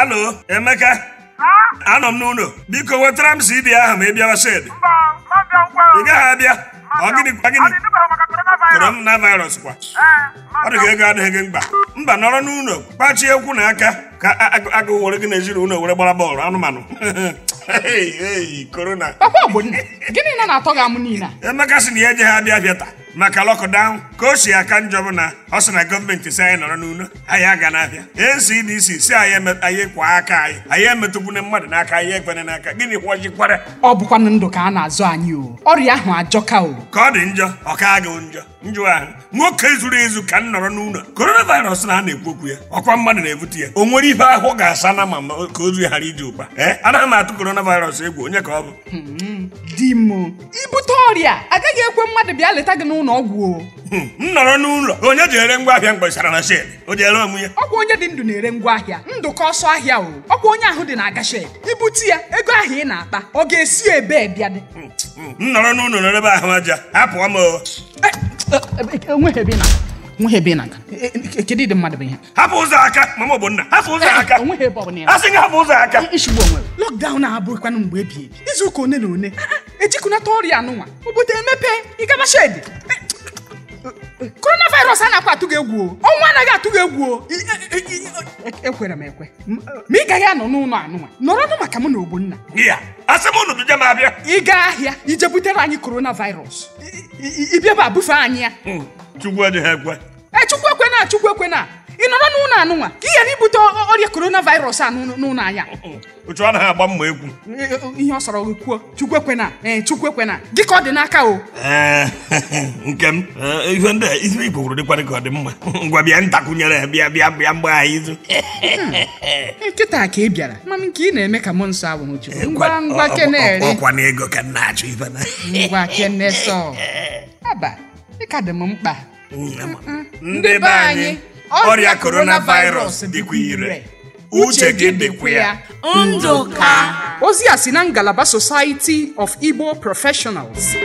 Halo, Emeka. Anọ m n'ụlọ. Biko wetara m CD ahụ ma ị bịawa shed. Ị gaghị abịa. Ọ gịnị kwa gịnị? Korona virus kwa. Ọ dị ka ego adịghị gị mkpa. Mba nọrọ n'ụlọ kpachie ekwu na aka ka agụụ were gị na ezinụlọ were gbara bọọlụ anụmanụ. Korona. Papa Ogbonne, gịnị na na-atọ gị amụ niile? Emeka sị na ya eje ha abịa abịa taa. maka lọkụdaụn ka o si aka njọ bụ na ọ sị na gọọmenti si anyị nọrọ n'ulo anyị aga n'abịa dc si anyị kwa aka anyị anyị emetụkwuna mmadụ n'aka anyị egbene n'aka gịnị kwọjikwara ọ bụkwanụ ndụ ka a na-azụ anyị o ọrịa ahụ ajọka o ka ọ dị njọ ọ ka gị njọ njọ ahụ nwoke zuru ezu ka m nọrọ n'ụlọ coronavirus na a na-ekwu okwu ya ọkwa mmadụ na-ebute ya o nwere ihe ahụ ga-asa na ma ka ozu ghara iji ụkpa ee anaghị m atụ korona coronavirus egwu onye ka ọ bụ hmm, di m ibute ọrịa agaghị ekwe mmadụ bịa leta gị n'ụlọ ọgwụ hmm, m nọrọ n'ụlọ onye ji ere ngwa ahịa mgbesara na shed o ji ere onwe ya ọkwa onye dị ndụ na-ere ngwa ahịa ka ọsọ ahịa o ọkwa onye ahụ dị na-aga shed ibute ya ego ahịa ị na-akpa ọ ga-esi ebe bịa dị hmm, hmm, m nọrọ n'ụlọ n'ebe ahụ aja hapụọ m onweghebe e, e, e, na nweghebe na kedu ịdị mmadụ bụ ihe hapụ ụzọ aka mama ogbonna hapụ ụzọ aka asị gị hapụ ụzọ aka ishigbu onwe lọkdaụn abụghịkwanụ mgbe ebi ebi izu ụka one na one ejikunata ọrịa anụnwa obodo emepe ịgaba shedi coronavirus anaghịkwa atụ gị egwu o ọnwụ anaghị atụ gị egwu o e, e, e, ekwere m ekwe ma ị gaghị anọ n'ụlọ anụnwa nụ maka mụ na ogbonna ị gaa ahịa ije butere anyị coronavirus ịbịaba bufe anyị ya hmm, echukwu ekwe chukwu ekwena ị nọrọ n'ụlọ anụnwa ka ị ghara ibute ọrịa korona a n'ụlọ anya uchu anaghị agba mma egwu ihe ọ sọrọ kwuo chukwu ekwena ee eh, chukwu ekwena gị ka ọ dị n'aka o eh, nke m eh, ife ndị ife igbo kwuru dịkwarị ka ọ dị mma ngwa bịa ntakwụnyere bịa bịa bịa mgbe anyị izu nkịta hmm. ka ị bịara mmanụ ka ị na-eme ka mụ nsọ abụ chukwu ngwa ngwa kenere ọkwa na ego ka na achụ ife na ngwa kene sọ aba ị ka dị m mkpa ndị be anyị ọrịa coronavirus dịkwa ire uche gị dịkwa ya ndụ ka ozi a si na ngalaba society of igbo professionals